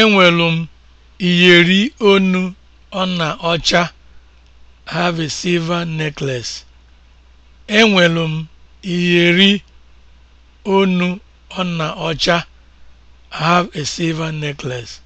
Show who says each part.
Speaker 1: Enwelu m iyeri onu ọna ọcha. have a silver necklace. Enwelu m iyeri ọna ọcha. have a silver necklace.